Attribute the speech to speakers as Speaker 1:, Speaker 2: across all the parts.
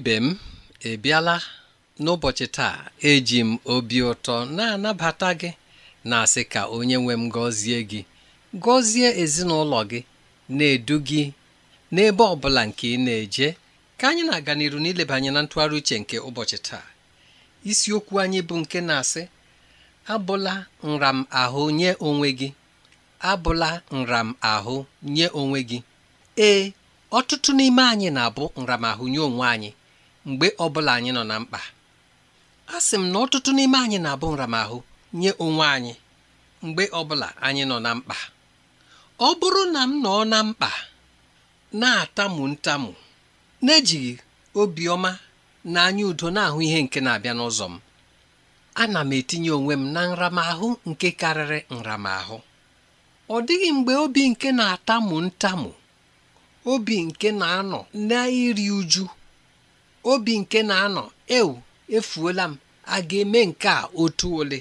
Speaker 1: ibe m ebiala n'ụbọchị taa eji m obi ụtọ na-anabata gị na-asị ka onye nwe m gọzie gị gọzie ezinụlọ gị na-edu gị n'ebe ọ bụla nke ị na-eje ka anyị na-aga n'iru n'ileba na ntụgharị uche nke ụbọchị taa isiokwu anyị bụ nke na-asị abụla nram ahụ nye onwe gị abụla nram ahụ nye onwe gị ee ọtụtụ n'ime anyị na-abụ nramahụ nye onwe anyị mgbe bụla anyị nọ na mkpa a sị m na ọtụtụ n'ime anyị na-abụ nramahụ nye onwe anyị mgbe ọbụla anyị nọ na mkpa ọ bụrụ na m nọ na mkpa na-atamu ntamu ejighị obiọma na anya udo na-ahụ ihe nke na-abịa n'ụzọ m ana m etinye onwe m na nramahụ nke karịrị nramahụ ọ dịghị mgbe obi nke na-atamu ntamu obi nke na-anọ na iri uju obi nke na-anọ ewu efuola m a ga-eme nke a otu ole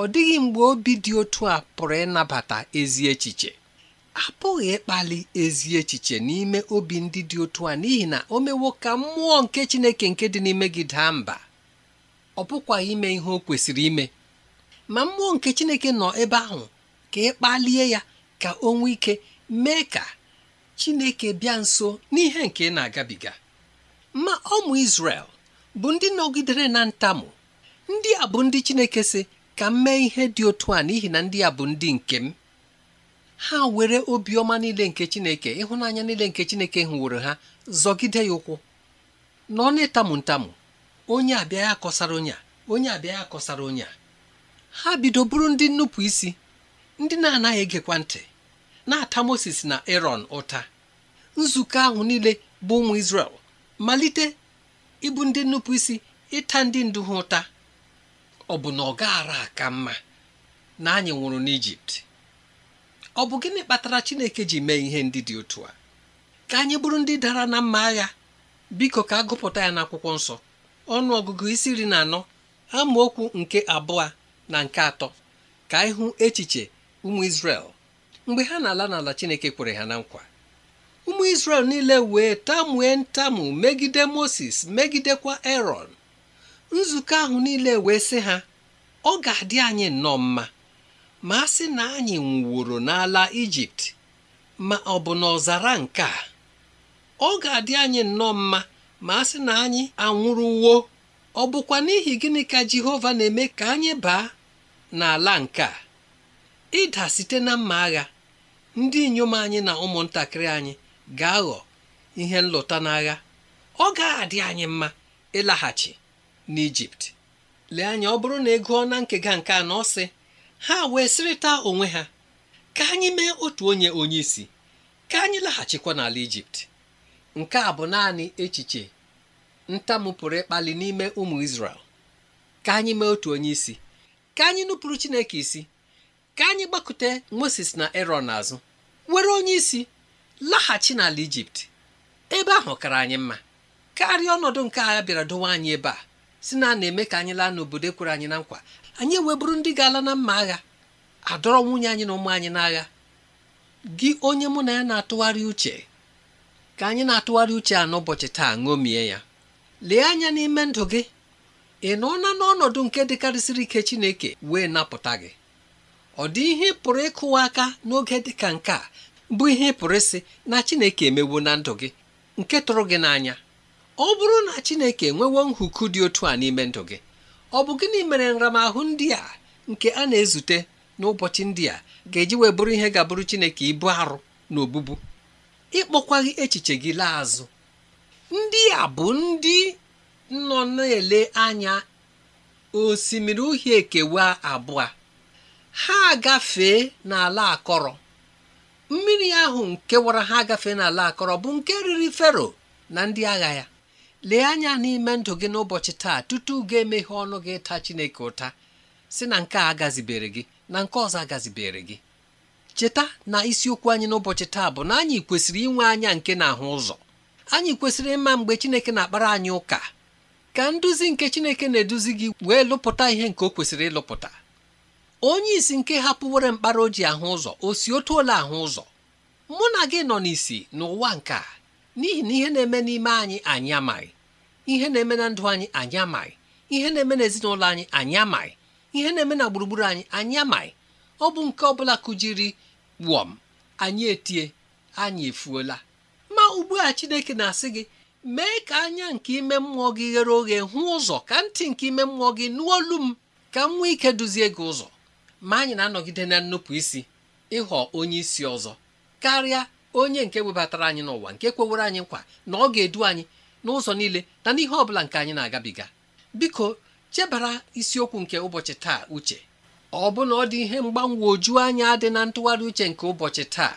Speaker 1: ọ dịghị mgbe obi dị otu a pụrụ ịnabata ezi echiche apụghị ịkpali ezi echiche n'ime obi ndị dị otu a n'ihi na o mewo ka mmụọ nke Chineke nke dị n'ime gị daa mba ọ bụkwa ime ihe o kwesịrị ime ma mmụọ nke Chineke nọ ebe ahụ ka ịkpalie ya ka o nwee ike mee ka Chineke bịa nso n'ihe nke ị na-agabiga ma ụmụ isrel bụ ndị nọgidere na ntamu ndị a bụ ndị Chineke sị ka m mee ihe dị otu a n'ihi na ndị a bụ ndị nke m ha were obiọma niile nke Chineke ịhụnanya niile nke Chineke hụworo ha zọgide ya ụkwụ na ọ na-etamu ntamu onye abịa ya kọsara onye a onye abịa ya kọsara onye a ha bido bụrụ ndị nnupụ isi ndị na-anaghị egekwa ntị na-ata Moses na Aaron ụta nzukọ ahụ niile bụ ụmụ Israel malite ịbụ ndị nnupụ isi ịta ndị ndu ha ụta ọ bụ na ọ gaara aka mma na anyị nwụrụ n'Ijipt ọ bụ gịnị kpatara Chineke ji mee ihe ndị dị otu a ka anyị bụrụ ndị dara na mma agha biko ka a gụpụta ya n'akwụkwọ nsọ ọnụ ọgụgụ isi iri na anọ amaokwu nke abụọ na nke atọ ka ịhụ echiche ụmụ Izrel mgbe ha na-ala n'ala Chineke kwere ha na nkwa ụmụ isrel niile wee tamue ntamu megide Moses megidekwa eron nzukọ ahụ niile wee sị ha ọ ga-adị anyị nnọọ mma ma a sị na anyị nwụworo n'ala Ijipt ma ọ bụ n'ọzara nke a ọ ga-adị anyị nnọọ mma ma a sị na anyị anwụrụwo ọ bụkwa n'ihi gịnị ka Jehova na-eme ka anyị baa n'ala nke a ịda site na mma agha ndị inyom anyị na ụmụntakịrị anyị ga-aghọ ihe nlụta n'agha ọ ga-adị anyị mma ịlaghachi n'Ijipt lee anya ọ bụrụ na ị gụọ na nkega nke a na ọ sị ha wee sịrịta onwe ha ka anyị mee otu onye onye isi ka anyị laghachikwa n'ala Ijipt nke a bụ naanị echiche ntamu pụrụ ịkpali n'ime ụmụ Izrel ka anyị mee otu onye isi ka anyị nụpụrụ Chineke isi ka anyị gbakute Moses na Erọn azụ were onye isi laghachi n'ala ijipt ebe ahụ kara anyị mma karịa ọnọdụ nke a bịara dowe anyị ebe a si na a na-eme ka anyị laa n'obodo e kwere anyị na nkwa anyị eweburu ndị ga-ala na mma agha adọrọ nwunye anyị na ụmụ anyị n'agha gị onye mụ na ya na-atụgharị uche ka anyị na-atụgharị uche a n'ụbọchị taa ṅomie ya lee anya n'ime ndụ gị ị nọọla n'ọnọdụ nke dịkarịsịrị ike Chineke wee napụta gị ọ dị ihe pụrụ ịkụwa aka n'oge dịka nke a bụ ihe pụrụ isi na Chineke emewo na ndụ gị nke tụrụ gị n'anya ọ bụrụ na Chineke enwewo nhuku dị otu a n'ime ndụ gị ọ bụ gịnị mere nramahụ ndị a nke a na-ezute n'ụbọchị ndị a ga-eji wee bụrụ ihe ga-abụrụ Chineke ibu arụ na obubu ịkpọkwaghị echiche gị laa azụ ndị a bụ ndị nọ na-ele anya osimiri uhie ekewa abụọ ha gafee n'ala akọrọ mmiri ahụ nke wara ha agafe n'ala akọrọ bụ nke riri fero na ndị agha ya lee anya n'ime ndụ gị n'ụbọchị taa tutu ga-emeghe ọnụ gị taa chineke ụta si na nke a agazibere gị na nke ọzọ agazibere gị cheta na isiokwu anyị n'ụbọchị taa bụ na anyị kwesịrị inwe anya nke na-ahụ ụzọ anyị kwesịrị ịma mgbe chineke na-akpara anyị ụka ka nduzi nke chineke na-eduzi gị wee lụpụta ihe nke o kwesịrị ịlụpụta onye isi nke hapụwere mkpara o ahụ ụzọ o si otu ole ahụ ụzọ mụ na gị nọ n'isi n'ụwa nke a n'ihi na ihe na-eme n'ime anyị anyị amaghị ihe na-eme na ndụ anyị anyị amaghị ihe na-eme n'ezinụlọ anyị anyị amaghị ihe na-eme na gburugburu anyị anyị amaghị ọ bụ nke ọ bụla kụjiri wọm anyị etie anyị efuola ma ugbu a Chineke na-asị gị mee ka anya nke ime mmụọ gị ghere oghe hụ ụzọ ka ntị nke ime mmụọ gị nụ olu m ka m nwee ike duzie gị ụzọ ma anyị na-anọgide na nnupụ isi ịghọ onye isi ọzọ karịa onye nke webatara anyị n'ụwa nke kwewere anyị nkwa na ọ ga-edu anyị n'ụzọ niile na n'ihe ọ bụla nke anyị na-agabiga biko chebara isiokwu nke ụbọchị taa uche ọ bụ na ọ dị ihe oju anya dị na ntụgharị uche nke ụbọchị taa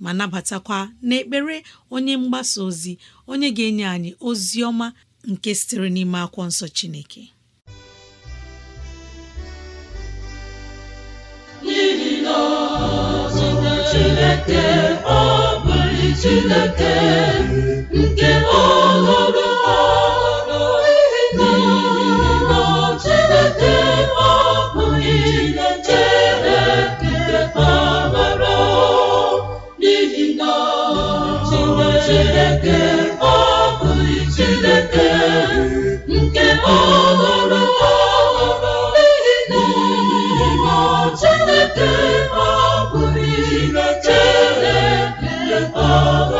Speaker 2: ma nabatakwa n'ekpere onye mgbasa ozi onye ga-enye anyị ozi ọma nke sitere n'ime akwụkwọ nsọ Chineke Chineke ọ bụ Chineke nke ọhụrụ Chineke ọ
Speaker 3: bụghị Chineke nke ọhụrụ ọhụrụ n'ihi na Chineke ọ bụghị Chineke ọhụrụ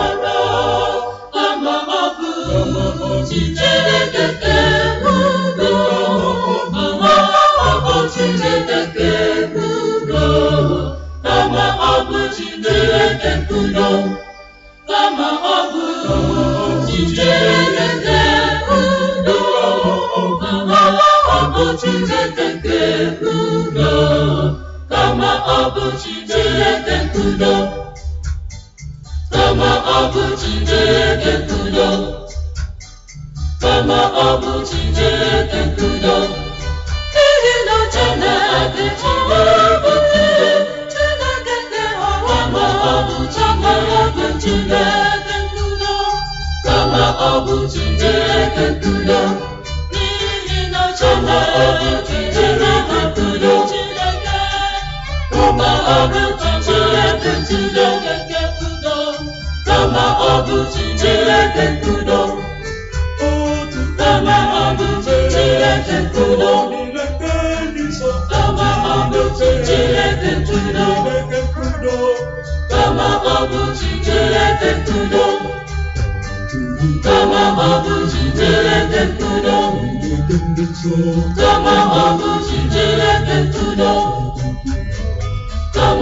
Speaker 3: Chineke Chineke
Speaker 1: nke udo
Speaker 3: kama ọ bụ Chineke nke udo
Speaker 2: kama ọ bụ
Speaker 3: Chineke nke kama kama kama kama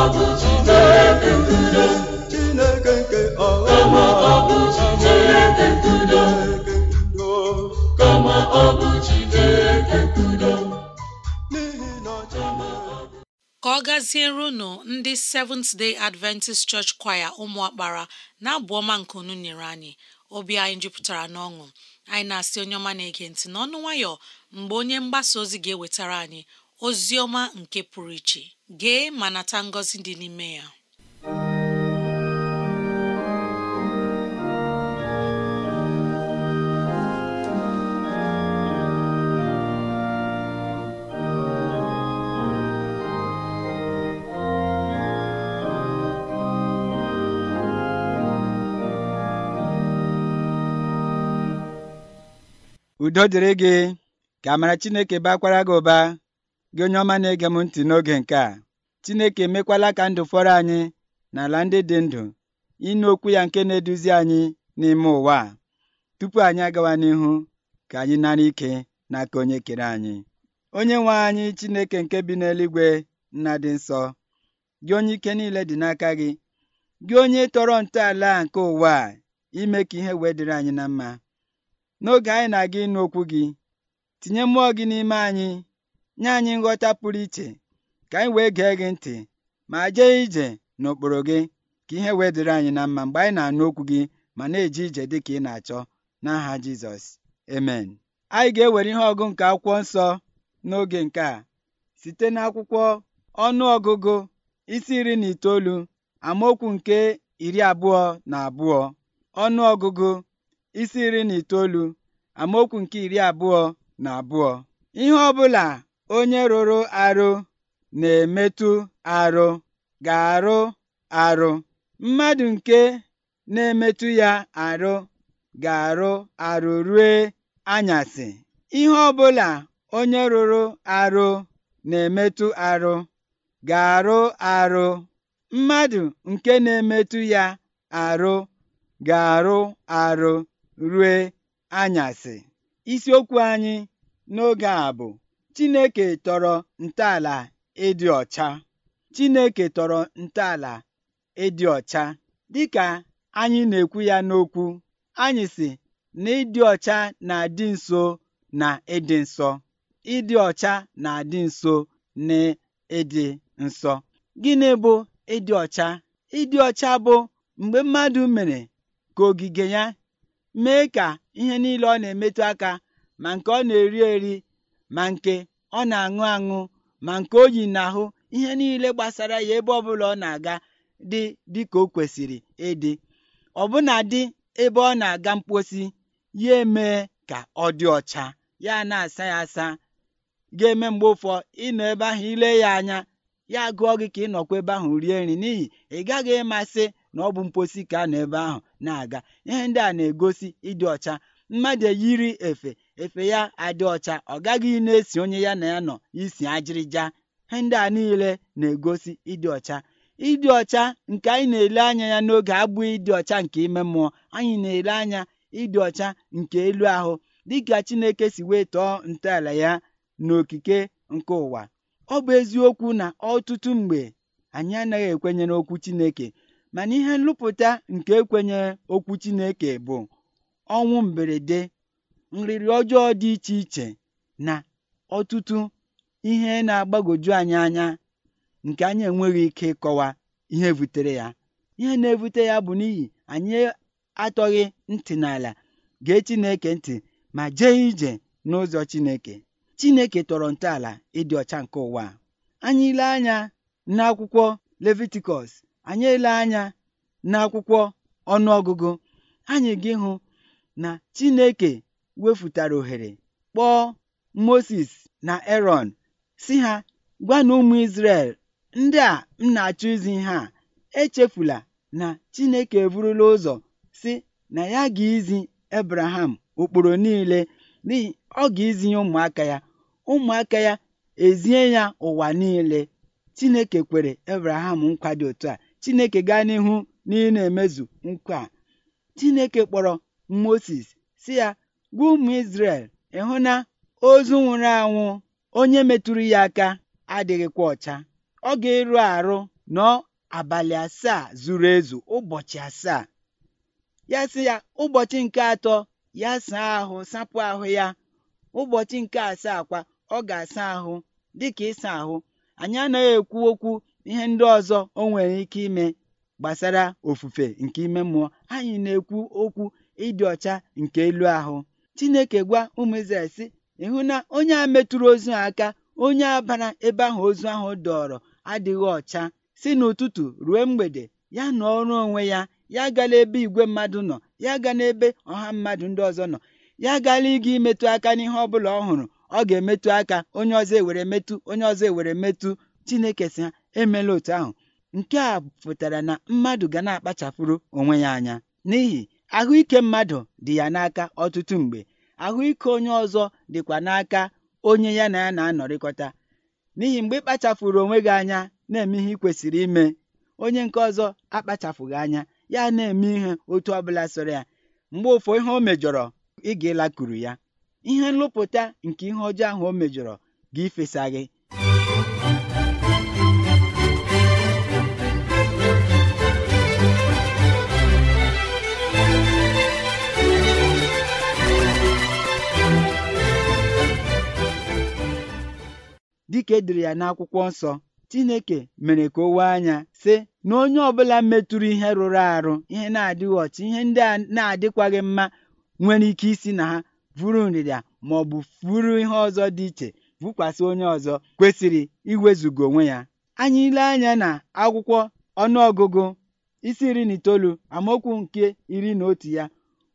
Speaker 3: ka
Speaker 2: ọ gaziere unu ndị Seventh Day Adventist Church Choir ụmụakpara na-abụ ọma nke unu nyere anyị obi anyị jupụtara n'ọṅụ anyị na-asị onye ọma na-ege ntị n'ọnụ nwayọ mgbe onye mgbasa ozi ga-ewetara anyị ozi ọma nke pụrụ iche gee ma nata ngọzi dị n'ime ya
Speaker 3: udo dịrị gị ka amara Chineke bakwara gị ụba gị onye ọma na-ege m ntị n'oge nke a Chineke emekwala ka ndụ fọrọ anyị na ala ndị dị ndụ ịnụ okwu ya nke na-eduzi anyị n'ime ụwa a tupu anyị agawa n'ihu ka anyị nara ike n'aka onye kere anyị onye nwe anyị Chineke nke bi n'eluigwe nna dị nsọ gị onye ike niile dị n'aka gị gị onye tọrọ ntọala nke ụwa a ime ka ihe wee dịrị anyị na mma n'oge anyị na-aga ịnụ okwu gị tinye mmụọ gị n'ime anyị nye anyị nghọta pụrụ iche ka anyị wee gee gị ntị ma jee ije n'okpuru gị ka ihe wee dịrị anyị na mma mgbe anyị na-anụ okwu gị ma na-eje ije dị ka ị na-achọ n'aha Jizọs emen anyị ga-ewere ihe ọgụ nke akwụkwọ nsọ n'oge nke a site n'akwụkwọ ọnụ ọgụgụ isi iri na itoolu amaokwu nke iri abụọ na abụọ ọnụ ọgụgụ isi iri na itoolu amaokwu nke iri abụọ na abụọ ihe ọ bụla onye rụrụ arụ na-emetụ arụ ga-arụ arụ mmadụ nke na-emetụ ya arụ ga-arụ arụ rue anyasị ihe ọbụla onye rụrụ arụ na-emetụ arụ ga-arụ mmadụ nke na-emetụ ya arụ ga arụ rue anyasị isiokwu anyị n'oge a bụ Chineke tọrọ ntọala ịdị ọcha. Chineke tọrọ ịdị ọcha. Dịka anyị na-ekwu ya n'okwu, anyị si na ịdị ọcha na-adị nso na ịdị nsọ. Ịdị ọcha na-adị nso na ịdị nsọ. Gịnị bụ ịdị ọcha? Ịdị ọcha bụ mgbe mmadụ mere ka ogige ya mee ka ihe niile ọ na-emetụ aka ma nke ọ na-eri eri ma nke ọ na-aṅụ aṅụ ma nke o yi n'ahụ ihe niile gbasara ya ebe ọbụla ọ na-aga dị dịka o kwesịrị ịdị ọbụna dị ebe ọ na-aga mposi ya emee ka ọ dị ọcha ya na-asa ya asa ga-eme mgbe ụfọ ịnọ ebe ahụ ile ya anya ya gụọ gị ka ịnọkwa ebe ahụ rie nri n'ihi ị gaghị ịmasị na ọ bụ mposi ka a nọ ebe ahụ na-aga ihe ndị a na-egosi ịdị ọcha mmadụ eyiri efe efe ya adị ọcha ọ gaghị na-esi onye ya na ya nọ isi ajịrịja he ndị a niile na-egosi ịdị ọcha ịdị ọcha nke anyị na-ele anya ya n'oge abụghị ịdị ọcha nke ime mmụọ anyị na-ele anya ịdị ọcha nke elu ahụ dịka Chineke si wee tọọ ntọala ya n'okike nke ụwa ọ bụ eziokwu na ọtụtụ mgbe anyị anaghị ekwenye n'okwu Chineke mana ihe nlụpụta nke ekwenye okwu Chineke bụ ọnwụ mberede nrịrị ọjọọ dị iche iche na ọtụtụ ihe na-agbagwoju anyị anya nke anyị enweghị ike ịkọwa ihe butere ya ihe na-ebute ya bụ n'ihi anyị atọghị ntị n'ala gee Chineke ntị ma jee ije n'ụzọ Chineke Chineke tọrọ ntọala ịdị ọcha nke ụwa anyị ile anya n'akwụkwọ Levitikọs anyị ele anya n'akwụkwọ ọnụọgụgụ anyị ga ịhụ na Chineke wefụtara ohere kpọọ Moses na Erọn si ha "Gwa na ụmụ Izrel ndị a m na-achọ izi ha echefula na Chineke eburula ụzọ si na ya ga-izi Ebraham ụkpụrụ niile n'ihi ọ ga-izi ya ụmụaka ya ụmụaka ya ezie ya ụwa niile Chineke kwere Ebraham nkwa dị otu a Chineke gaa n'ihu na ị na-emezu nkwa a Chineke kpọrọ Moses sị ya gwa ụmụ ị ịhụ na ozu nwụrụ anwụ onye metụrụ ya aka adịghịkwa ọcha ọ ga-eru arụ nọ abalị asaa zuru ezu ụbọchị asaa ya sị ya ụbọchị nke atọ ya saa ahụ sapụ ahụ ya ụbọchị nke asaa kwa ọ ga-asa ahụ dịka ịsa ahụ anyị anaghị ekwu okwu ihe ndị ọzọ o nwere ike ime gbasara ofufe nke ime mmụọ anyị na-ekwu okwu ịdị ọcha nke elu ahụ Chineke gwa ụmụ Izrel sị ịhụ na onye a metụrụ ozu aka onye a bara ebe ahụ ozu ahụ dọrọ adịghị ọcha si n'ụtụtụ ruo mgbede ya na ọrụ onwe ya ya gala ebe igwe mmadụ nọ ya ga n'ebe ọha mmadụ ndị ọzọ nọ ya gala ịga imetụ aka n'ihe ọ bụla ọ hụrụ ọ ga-emetụ aka onye ọzọ ewere metụ onye ọzọ ewere metụ Chineke si ha emela otu ahụ nke a pụtara na mmadụ ga na-akpachapụrụ onwe ya anya n'ihi ahụike mmadụ dị ya n'aka ọtụtụ mgbe ahụike onye ọzọ dịkwa n'aka onye ya na ya na-anọrịkọta n'ihi mgbe ị onwe gị anya na-eme ihe ị kwesịrị ime onye nke ọzọ akpachapụghị anya ya na-eme ihe otu ọbụla sọrọ ya mgbe ụfọ ihe o mejọrọ ị ga ya ihe nlụpụta nke ihe ọjọọ ahụ o mejọrọ gị ifesa dịka e ya n'akwụkwọ nsọ Chineke mere ka o wee anya sị na onye ọbụla metụrụ ihe rụrụ arụ ihe na-adịghị ọchị ihe ndị a na-adịkwaghị mma nwere ike isi na ha vụrụ nrịrịa ma ọ bụ furu ihe ọzọ dị iche vụkwasị onye ọzọ kwesịrị iwezugo onwe ya anyị ile anya na akwụkwọ ọnụọgụgụ isi iri na itoolu amaokwu nke iri na otu ya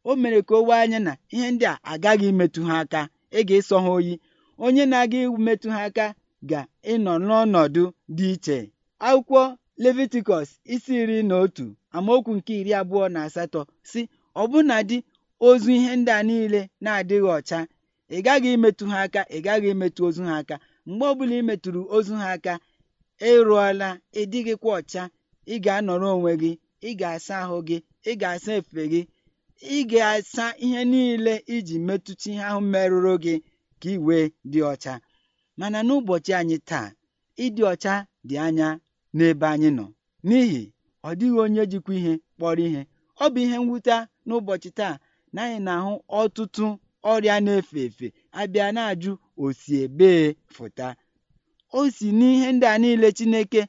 Speaker 3: o mere ka o wee anya na ihe ndị a agaghị imetụ ha aka ị ga-ịsọ ha oyi onye na-aga metụ ha aka ga-ịnọ n'ọnọdụ dị iche. Akwụkwọ Levitikọs isi iri na otu amaokwu nke iri abụọ na asatọ si ọbụnadị ozu ihe ndị a niile na-adịghị ọcha ị gaghị imetụ ha aka ị gaghị imetụ ozu ha aka mgbe ọbụla ị ozu ha aka ịrụọla ị dịghịkwa ọcha ị ga-anọrọ onwe gị ị ga-asa ahụ gị ị ga-asa efe gị ị ga-asa ihe niile iji metụta ihe ahụ merụrụ gị ka ị wee dị ọcha mana n'ụbọchị anyị taa ịdị ọcha dị anya n'ebe anyị nọ n'ihi ọ dịghị onye jikwa ihe kpọrọ ihe ọ bụ ihe mwute n'ụbọchị taa na anyị na-ahụ ọtụtụ ọrịa na-efe efe abịa na-ajụ osi ebee fụta o si n'ihe ndị a niile Chineke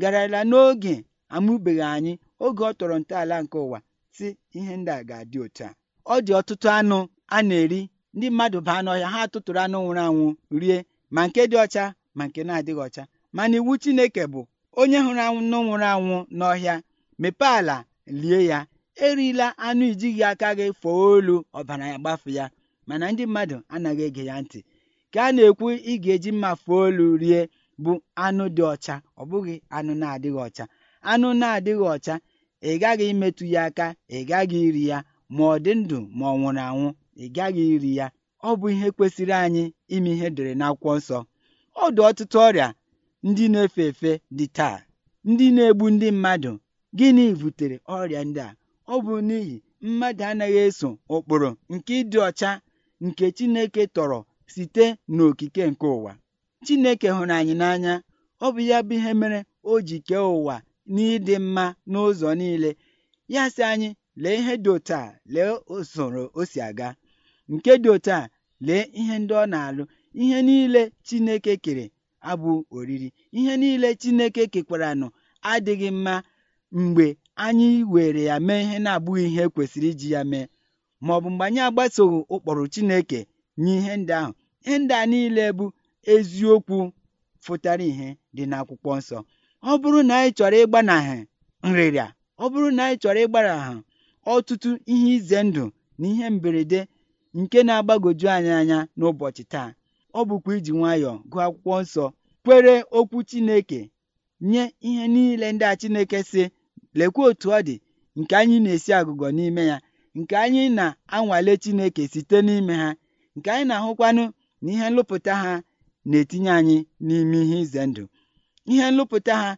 Speaker 3: garala n'oge amụbeghị anyị oge ọ tọrọ ntọala nke ụwa si ihe ndị a ga-adị otu a ọ dị ọtụtụ anụ a na-eri ndị mmadụ baa n'ọhịa ha tụtụrụ anụ nwụrụ anwụ rie ma nke dị ọcha ma nke na-adịghị ọcha mana iwu Chineke bụ onye hụrụ anụ nwụrụ anwụ n'ọhịa mepee ala lie ya erila anụ ijighị aka gị fọọ olu ọbara ya gbafu ya mana ndị mmadụ anaghị ege ya ntị ka a na-ekwu ị ga-eji mma fọọ olu rie bụ anụ dị ọcha ọ bụghị anụ na-adịghị ọcha anụ na-adịghị ọcha ị gaghị imetụ ya aka ị gaghị iri ya ma ọ dị ndụ ma ọ nwụrụ anwụ ị gaghị iri ya ọ bụ ihe kwesịrị anyị ime ihe edere akwụkwọ nsọ ọ dị ọtụtụ ọrịa ndị na-efe efe dị taa ndị na-egbu ndị mmadụ gịnị butere ọrịa ndị a ọ bụ n'ihi mmadụ anaghị eso ụkpụrụ nke ịdị ọcha nke Chineke tọrọ site n'okike nke ụwa Chineke hụrụ anyị n'anya ọ bụ ya bụ ihe mere o ji kee ụwa n'ịdị mma n'ụzọ niile ya sị anyị lee ihe dị otu a lee usoro o si aga nke dị otu a lee ihe ndị ọ na-alụ ihe niile Chineke kere abụ oriri ihe niile Chineke kekwaranụ adịghị mma mgbe anyị were ya mee ihe na-abụghị ihe kwesịrị iji ya mee ma ọ bụ mgbe anyị agbasoghị ụkpọrụ Chineke nye ihe ndị ahụ ihe ndị a niile bụ eziokwu fụtara ihe dị n'akwụkwọ nsọ ọ bụrụ na anyị chọrọ ịgbanahụ nrịrịa ọ bụrụ na anyị chọrọ ịgbanahụ ọtụtụ ihe ize ndụ na ihe mberede nke na agbagoju anyị anya n'ụbọchị taa ọ bụkwa iji nwayọọ gụọ akwụkwọ nsọ kwere okwu Chineke nye ihe niile ndị a Chineke sị lekwa otu ọ dị nke anyị na-esi agụgọ n'ime ya nke anyị na-anwale Chineke site n'ime ha nke anyị na-ahụkwanụ na ihe nlụpụta ha na-etinye anyị n'ime ihe ize ndụ ihe nlụpụta ha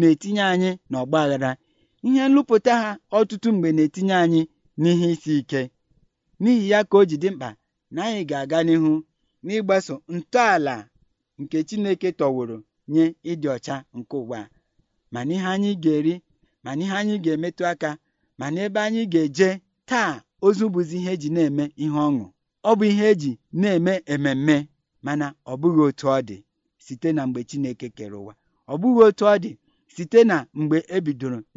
Speaker 3: na-etinye anyị n'ọgbaghara ihe nlụpụta ha ọtụtụ mgbe na-etinye anyị n'ihe isi ike N'ihi ya ka o ji dị mkpa na anyị ga-aga n'ihu n'ịgbaso ntọala nke Chineke tọwụrụ nye ịdị ọcha nke ụwa mana ma n'ihe anyị ga-eri ma n'ihe anyị ga-emetụ aka ma n'ebe anyị ga-eje taa ozu bụzi ihe eji na-eme ihe ọṅụ ọ bụ ihe eji na-eme ememme mana ọ bụghị otu ọ dị site na mgbe Chineke kere ụwa ọ bụghị otu ọ dị site na mgbe e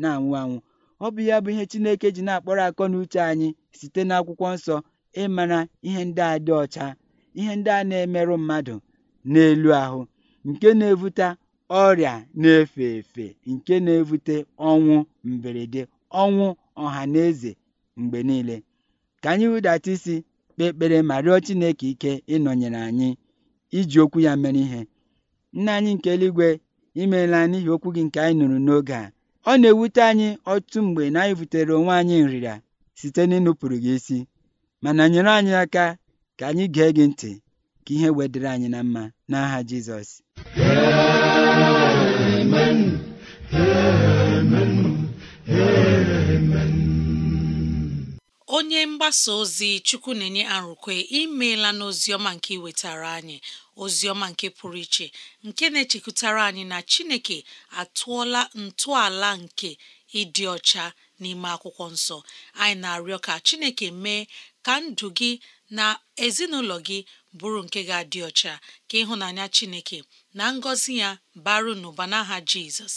Speaker 3: na-anwụ anwụ Ọ bụ ya bụ ihe Chineke ji na-akpọrọ akọ na uche anyị site n'akwụkwọ nsọ ịmara ihe ndị a dị ọcha ihe ndị a na-emerụ mmadụ n'elu ahụ nke na-evute ọrịa na-efe efe nke na-evute ọnwụ mberede ọnwụ ọha na eze mgbe niile ka anyị hụdata isi kpee ekpere ma rịọ Chineke ike ịnọnyere anyị iji okwu ya mere ihe nna anyị nke eluigwe imeela n'ihi okwu gị nke anyị nụrụ n'oge a Ọ na-ewute anyị ọtụtụ mgbe na anyị butere onwe anyị nrịra site n'ịnụpụrụ gị isi, mana nyere anyị aka ka anyị gee gị ntị ka ihe wedịrị anyị na mma n'aha Jizọs
Speaker 2: onye mgbasa ozi chukwu na-enye arụkwe imeela n'ozi ọma nke iwetara anyị ozioma nke pụrụ iche nke na-echekwutara anyị na Chineke atụọla ntọala nke ịdị ọcha n'ime akwụkwọ nsọ anyị na-arịọ ka Chineke mee ka ndụ gị na ezinụlọ gị bụrụ nke ga-adị ọcha ka ịhụnanya Chineke na ngọzi ya baru n'ụba n'aha Jizọs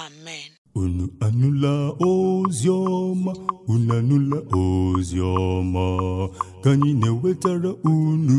Speaker 2: amen
Speaker 3: unu anụla ozi unu anụla ozi ka anyị na-ewetara unu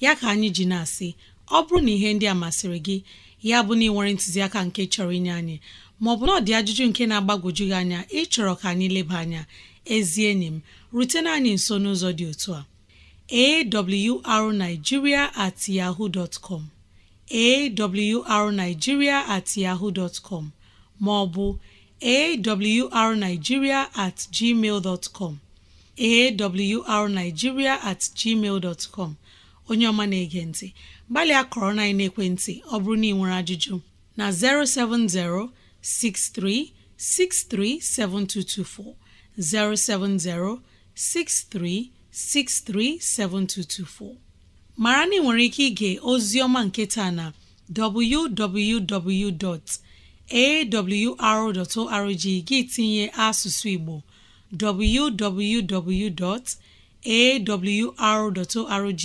Speaker 2: ya ka anyị ji na-asị ọ bụrụ na ihe ndị a masịrị gị ya bụ na ị nwere ntụziaka nke chọrọ inye anyị maọbụ na ọ dị ajụjụ nke na-agbagwoju gị anya ịchọrọ ka anyị leba anya ezi enyi m rutena anyị nso n'ụzọ dị otu a awrnigeria at yahoo dot com at yahoo com maọbụ awrnigeria at gmail com awrnigeria at gmail com onye ọma na-ege ntị gbalịa kọrọ na ekwentị ọ bụrụ na ị nwere ajụjụ na 07063637224 07063637224 mara na ị nwere ike ige ozi ọma nke taa na www.awr.org gị tinye asụsụ Igbo www.awr.org